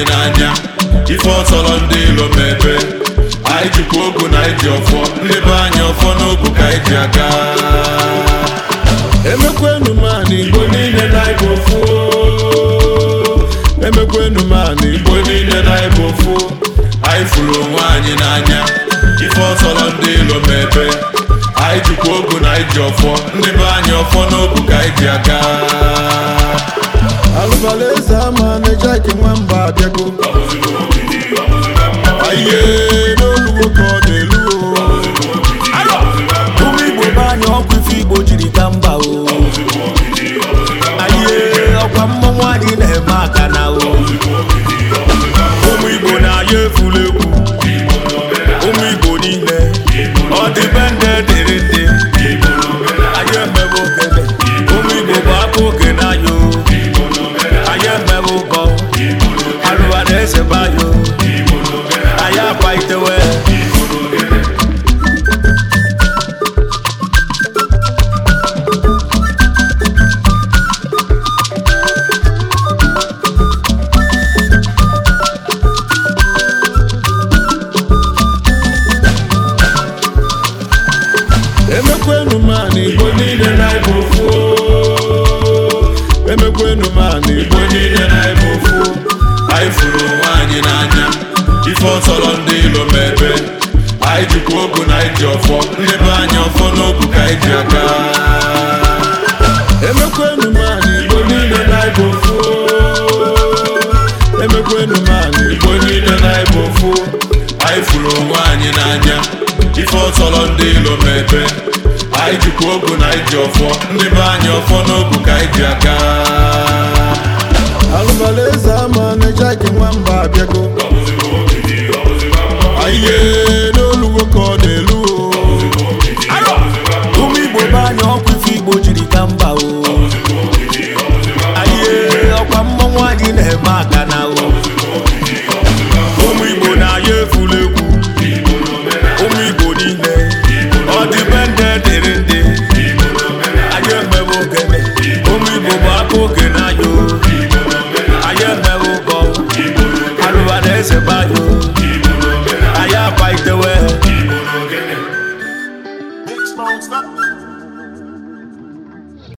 anyị n'anya ife ọsọrọ ndị ilo mebe anyị jikwa ogu na anyị ọfọ ndị anyị ọfọ n'ogu ka anyị ji aga emekwenu m igbo niile na ịbụ ofu emekwenu m igbo niile na anyị fụrụ onwe anyị n'anya ife ọsọrọ ndị ilo mebe anyị jikwa ogu na anyị ọfọ ndị be anyị ọfọ n'ogu ka anyị ji aga ihe n'olugbo ka ọ na ụmụ igbo be ọkwa igbo jiri mba o ọkwa mmọnwụ emekwenu ma na igbo niile na ibe ofu emekwenu ma na igbo niile na ibe ofu anyị furu onwe anyị n'anya ife ọtọrọ ndị ilo mebe anyị jikwa ogo na iji ọfọ ndị anyị ọfọ n'ogu ka anyị ji aka emekwenu ma na igbo niile na ibe ofu emekwenu ma na igbo niile na ibe ofu anyị furu onwe anyị n'anya ife ọtọrọ ndị ilo mebe anyị jikwa ogo na anyị ji ọfọ ndị be anyị ọfọ n'obu ka anyị ji aka alụbala eze ama na-eje gị nwamba abịago ihe n'oluwo ka ọ na-elu ụmụ igbo be anyị ọkwa ife igbo jiri ka mba o ihe ọkwa anyị na-eme aka o ụmụ igbo na-aya efula egwu ụmụ igbo niile ọ ndị dịrị dewe